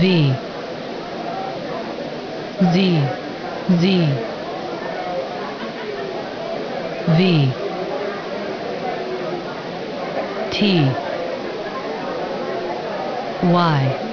V Z Z V T Y